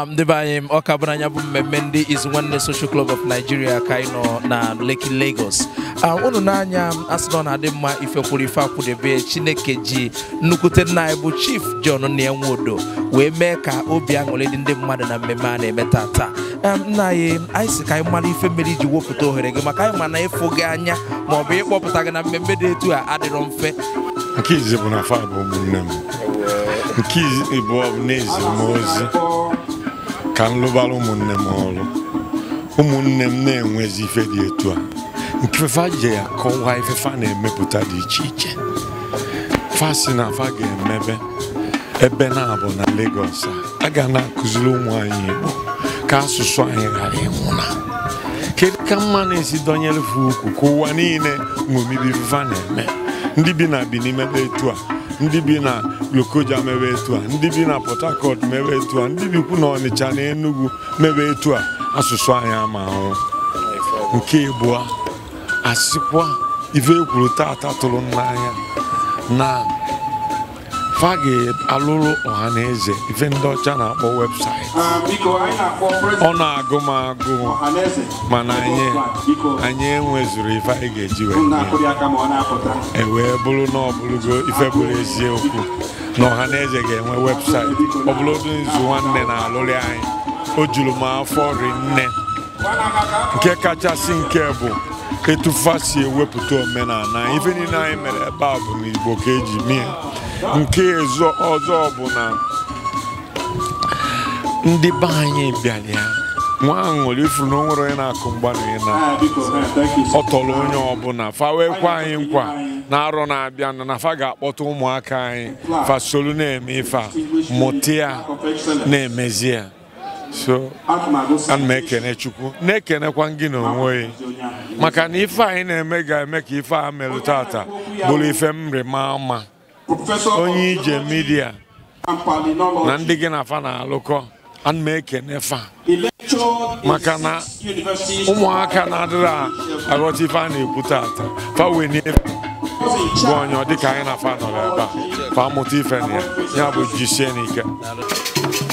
ndị um, be anyị ọka bụ bụ mmemme ndị Izu Nwanne Social Club of Nigeria ka uh, anyị nọ na Lekki Lagos unu n'anya asị na ọ na-adị mma ifekwuru ife akwụdebe Chineke ji nnukwute nna anyị bụ Chief John Nwodo wee mee ka obi aṅụrị dị ndị mmadụ na mmemme a na-eme tata um, nna anyị anyị si ka anyị mara ife mere iji wepụta ohere gị maka anyị ma na ịfụ gị anya ma ọ bụ ịkpọpụta gị na mmemme dị etu a adịrọ mfe nke izi bụ na fa bụ ụmụnne m nke bụ n'ezi m ozi ka m lụbara ụmụnne m ọrụ ụmụnne m na-enwezi ife dị etu a nke fefa ji ya kọwaa ifefa na-emepụta dị iche iche fasi na afa ga-emebe ebe na-abụ na Lagos a ga na-akụziri ụmụ anyị Igbo ka asụsụ anyị ghara na kedu ka mma na-esi dọnyere fe ukwu ka ụwa niile ṅomibi fefa na-eme ndị bi na bi n'imebe etu a ndị bi na Lokoja mewe etu a ndị bi na Port Harcourt mewe etu a ndị bikwu na Ọnịcha na Enugu mewe etu a asụsụ anyị ama ahụ nke ịbụa asịkwa ife ekwuru tata tụrụ n'anya na fa ga-alụrụ ọha na eze ife ndị ọcha na-akpọ webụsaịtị ọ na-agụ m agụ mana anyị anyị enwezuru ife anyị ga-eji wee e wee bụrụ na ọ ife bụrụ eziokwu na ọha na eze ga-enwe webụsaịtị ọ bụrụ nzu nwanne na-alụrị anyị o juru m afọ rinne nke kachasị nke bụ ketufa si ewepụta omenala ife niile anyị mere ebe a bụ n'Igbo ka eji mie nke ọzọ bụ na ndị be anyị bịara ya nwa ahụ ṅụrụ ifuru na o onye na-akụ mgbanwe na ọtọrọ onye ọbụla fa anyị nkwa na-arọ na-abịa na fa ga-akpọta ụmụaka anyị fa na-eme ife a mụta ya na-emezi ya so ana m chukwu na-ekenekwa gị n'onwe maka na ife anyị na-eme ga-eme ka ife a melụ tata bụrụ ife mrịma mma onye ije midia na ndị gị na afa na-alụkọ ana fa maka na ụmụaka na-adịrị aghọta ife a na-ekwu tata fa wee bụ onye ọ dịka anyị na fa nọrọ ebe a fa mụta ife na ya ya bụ jisie n'ike